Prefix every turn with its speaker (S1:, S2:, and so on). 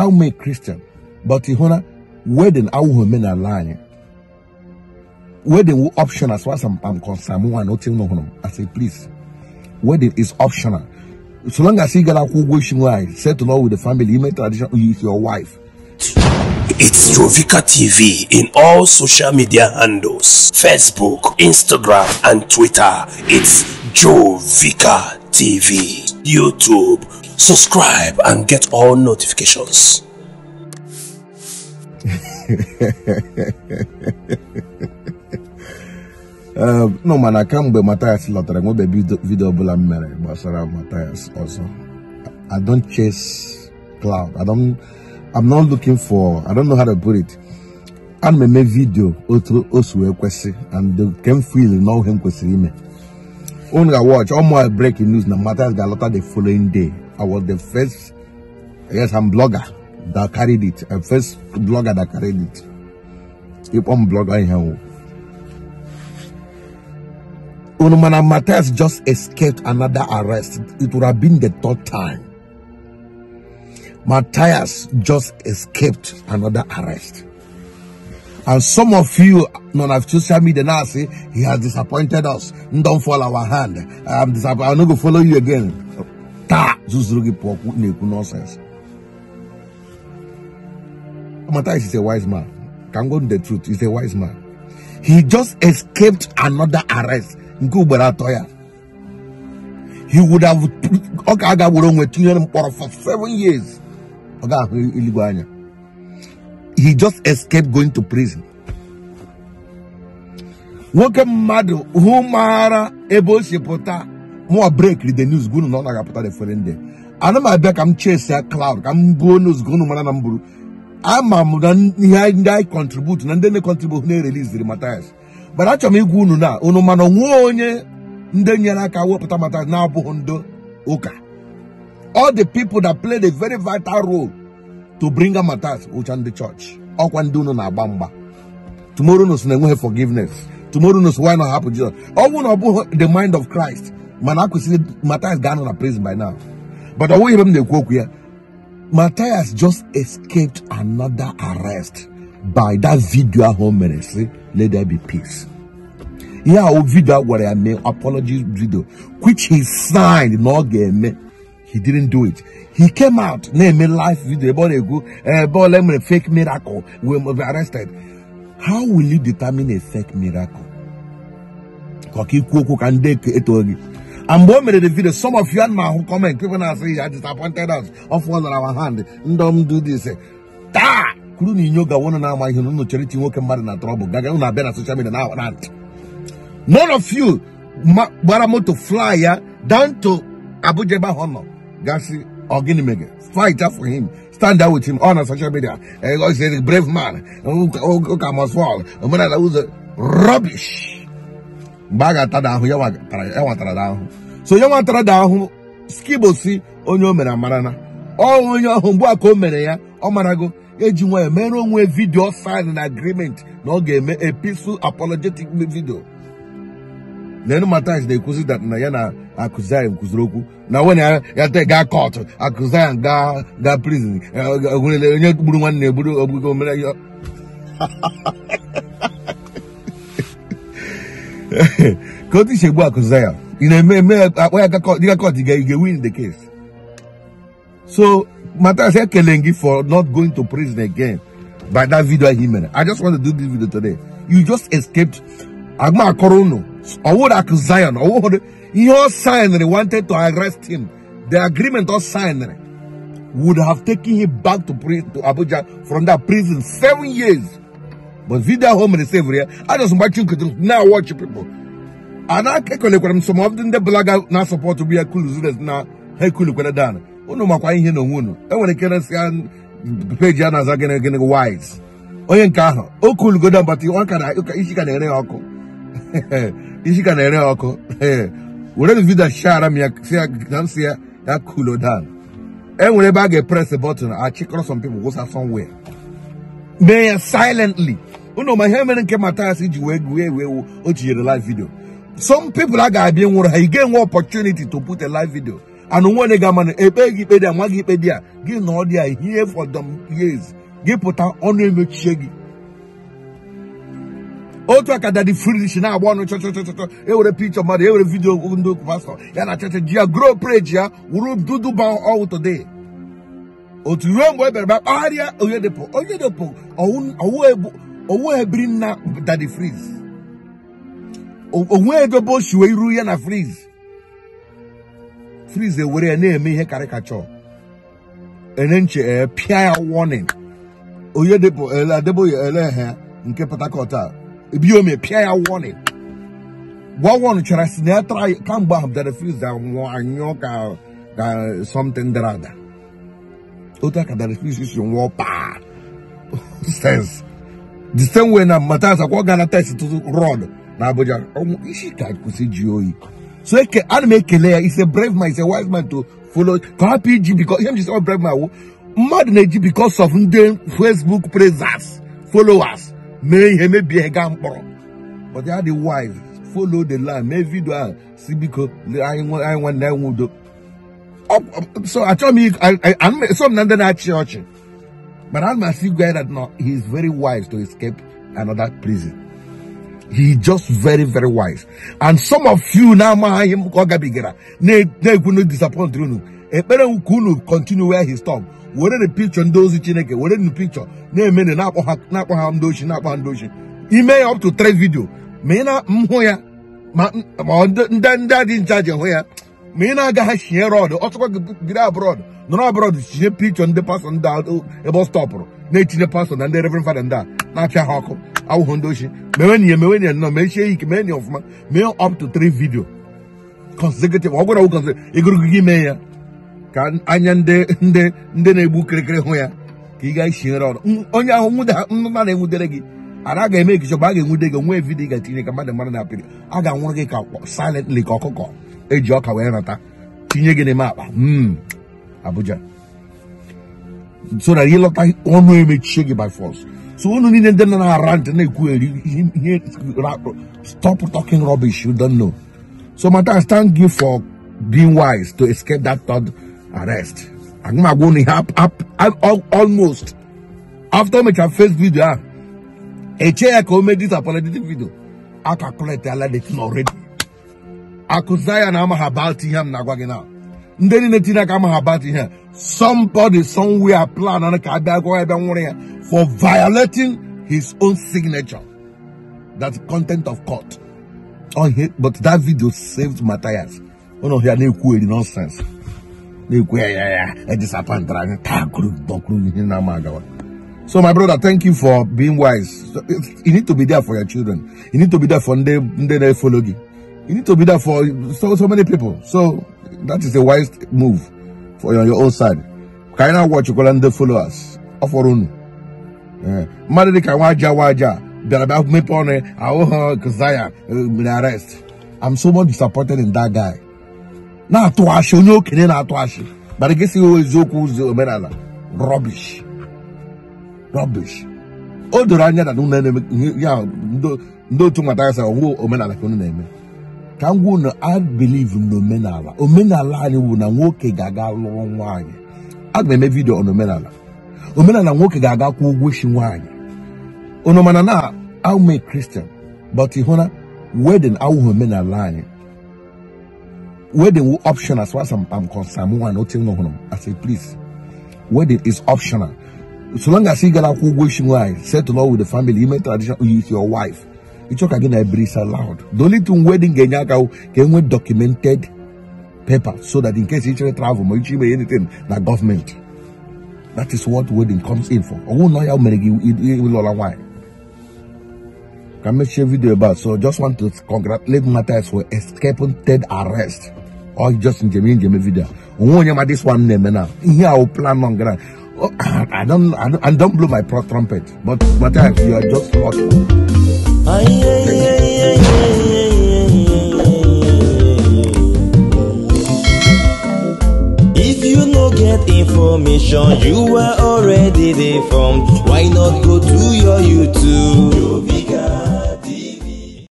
S1: I'm a Christian, but ị hụ na wedin awụghị omenala anyị wedding optional as far as I'm, I'm concerned. One not telling home. I say please, wedding is optional. So long as you get a cool wishing wife, to Lord with the family, you make tradition with your wife. It's Trovika TV in all social media handles Facebook, Instagram, and Twitter. It's Jovika TV, YouTube subscribe and get all notifications. Um, no man, I mana kamgbe Matthias lọtara nwebe vidio ọbụla m mere gbasara Matthias ọzọ I don't chase cloud I don't I'm not looking for I don't know how to put it ana m eme vidio otu o si wee kwesị and ke can feel na him. m me. Only watch all my breaking news na Matthias ga-alọta the following day I was the first, yes, I'm blogger that carried it. A first blogger that carried it. If I'm blogger here, here. Unumana Matthias just escaped another arrest. It would have been the third time. Matthias just escaped another arrest. And some of you, none of social media now say, he has disappointed us. Don't fall our hand. I'm disappointed. I'm not going to follow you again taa zuzuru gị pụọ na-ekwu nonsense. Matthias is a wise man can go the truth is a wise man he just escaped another arrest nke ugboro he would have been aga for seven years anya he just escaped going to prison nwoke mmadụ hụ maara ebe si pụta mụọ breki the news gunu na ọ na-agapụta efere ndị ana m abịa ka m chesi cloud ka m buo news gunu mara na m buru ama na ihe ndị anyị na ndị na na-ereliziri Mathias mana achọrọ m igwa unu na unu mana onye ndị nyere aka wepụta Mathias na-abụghị ndị ụka all the people that played a very vital role to bring ndị chọọchị ọkwa ndị na tomorrow na enweghị forgiveness tomorrow why not ọ na the mind of Christ mana Matthias gone out of prison by now but the way m na-ekwu okwu Matthias just escaped another arrest by that video home ministry. let there be peace I will video what I mean, apology video which he signed No, ọ he didn't do it he came out name eme life video ebe go, na na-ekwu ebe fake miracle we be arrested how will you determine a fake miracle ka ọ kande ikwu okwu I'm bombing the video. Some of you and my who comment, people now say you are disappointed us of what's on our hand. Don't do this. Da! Kuru ni nyoga wana na ama hinu no charity woke mbari na trouble. Gaga una bena social media na want. None of you baramoto fly ya down to Abuja ba hono. Gasi ogini mege. Fight up for him. Stand out with him on oh, social media. Eh, he's a brave man. Oh, oh, oh, come as well. Rubbish. mgbe a ga-atada ahụ ya nwatara da ahụ so ya nwatara da skibosi onye o mere amara na ọ onye ọhụụ mgbe a ka o mere ya ọ marago eji nwa mere onwe vidiyo sign na agreement na ọ ga-eme episu apologetic video Nenu na-ekwuzi dat na ya na Akuzaịm kwuziri okwu na nwene ya te gaa kọtụ ya ga ga prison e, e, onye gburu nwanne ya gburu ogbugo mere ya Go to Shebu Akuzaya. You know, may, may, uh, where I you got you can win the case. So, Matasa Kelengi for not going to prison again by that video he made. I just want to do this video today. You just escaped Agma Korono, or what Akuzayan, or what he all they wanted to arrest him. The agreement all signed would have taken him back to, to Abuja from that prison seven years. but vidio ahụ o mere sevụrụ ya ajọsụ mgbachi nkụtụ na-awọchi pipụl a na kwere m sọmọdụ ndị bụlaga na-asọpọtụ bụ ya kuluzures na ha ekulukwere dan unu makwa ihe na onwe unu enwere ike resịa peji a na-aza gịnị gịnị wise onye nke ahụ o kulugodo mbata isi ka na-ere ọkụ isi ka na-ere ya ọkụ were vidio shara m ya si ya ya kulo dan enwere ebe a ga-epress bọtụn achịkọrọ some people somewhere mee ya silently unu ma ihe mere nke Matthias ji wee wee ewe ewu o tinyere live video some people a ga-abịa nwụrụ ha ị ga-enwe opportunity to put a live video and nwere ga ama ekpe gị ikpe dị a nwa gị ikpe dị a gị na ọ dị a ihe fọdụ years gị pụta ọnụ emechie gị otu aka dadi fridish na-agba ọnụ e ewere pikchọ mmadụ ewere vidio ndị pastọ ya na chọchọ ji ya grow preji ya wuru duduba ọwụ today otu ruo mgbe e bịara bịa kpagharịa onye depụ ọwụ ebu owó ebiri na dade freeze onwe ebe bụ siwe iru ya na freeze freeze ewere ya na-eme ihe karịkachọ ene nche eh, pịa ya warning onye debo ele eh, adebo ya ele ha nke Port Harcourt a ebiome pịa ya warning gwawon chara si na ya tara kamgbe ahụ dade freeze anwụọ anyụọ ka ka something dara ada otu aka dade freeze si nwụọ paa sense the same way na matasa kwa gana test to Rod na abuja ọmụ isi ka kwụsị ji oyi so eke ana m ekele ya ise brave man a wise man to follow ka hapụ iji bikọ ihe m ji brave man wụ oh. mmadụ na because of ndị facebook praisers followers mee ihe mebie gaa mkpọrọ but are the wise follow the line. land mee vidio ah, I want I want that anyị nwudo so I m me, I I ndị na nandana church. But I'm that see guy that no, he's very wise to escape another prison. He just very, very wise. And some of you now him bigera. ne ne disappoint you. Ekpere kunu continue where he stopped. Were the picture and ozi Chineke, were the picture na-eme ne na-akpọ ha na-akpọ ha ndị na-akpọ ha Ime up to three video. Ma ị na mhụ ya ma ndị ndị dị nchaji hụ ya ma ị na-aga ha shie rod ọ chọkwa gị abroad nọrọ abroad tinye pikchọ ndị pastọ ndị ebe ọ stọpụrụ na-etinye pastọ na ndị reverend fada ndị a na-apịa ha ọkụ awụhụ ndị ochie mewenye mewenye nọ mechie ya ike mee ya ọfụma mee up to three video consecutive ọ gwara wụ ịgụrụgị gị mee ya ka anya ndị ndị ndị na-egbu kirikiri hụ ya ka ị ga-esinyere ọrụ onye ahụ nna na-enwudere gị ara ga-eme ekiche bụ a ga-enwude gị nwe vidiyo ga-etinye ka mmadụ mara na apịrị a ga-anwụrụ gị ka silently ka ọkụkọ eji ọka wee nata tinye gị n'ime akpa hmm. Abuja. So that he looked like ono image shake by force. So ono ni nende na rant na ikuwe. Stop talking rubbish. You don't know. So my matter stand give for being wise to escape that third arrest. I'm going to help up. almost after my first video. Ah. A chair made this apologetic video. I calculate the already. I could say ah, I'm habalti yam na now ndị niile tinye aka amaghị about ihe somebody somewhere plan na ka abịa gụọ ebe nwụrụ for violating his own signature that's content of court Oh, here but that video saved Matthias ụnụ oh, he na-ekwu eri nonsense na-ekwu ya ya ya edisapantara anyị taa kụrụ dọkụrụ ihe na-ama So, my brother, thank you for being wise. You need to be there for your children. You need to be there for them, they follow you. You need to be there for so, so many people. So, that is a wise move for your your own side eh. ka anyị na-agwọchikwala ndị followers ọ fọrọ mmadụ dịka nwa aja nwa aja bịara bịa mepe ọnụ ahụ ha Zion mere eh, arrest I'm so much disappointed in that guy na-atụ ashị onye okenye na-atụ ashị mana gị sighị eziokwu omenala rubbish rubbish o doro anya na ya otu nwata ya sị omenala na-eme ka m gwa unu I believe na omenala omenala anyị bụ na nwoke ga-aga lụrụ nwaanyị aga m eme vidio n'omenala omenala nwoke ga-aga kwụ ụgwọ isi nwaanyị unu mana na aume kristian but ị hụ na wedin awụghị omenala anyị wedding option as far as I'm, I'm concerned. One not m I say please, wedding is optional. So long as you get a good wishing wife, settle all with the family, even tradition with your wife. ịchọ ka gị na brisa loud the only thing wedding ga-enye aka ka enwe documented paper so that in case ichere travel ma iche ime anything na government. that is what wedding comes in for ọnwụ na ya mere gị ịlụla nwaanyị ka mechie video ebe a so just want to congratulate Matthias for escaping third arrest or just njem njem video onwe onye ma this one na-eme na ihe a plan on ground I don't, I don't, I don't blow my trumpet, but Matthias, you are just lucky. If you no get information, you are already deformed. Why not go to your YouTube?